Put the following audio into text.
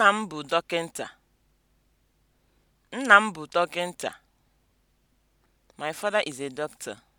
Nna m bụ dọkịnta. Nna m bụ dọkịnta. My father is a doctor.